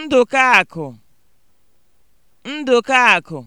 Ndụkaakụ akụ!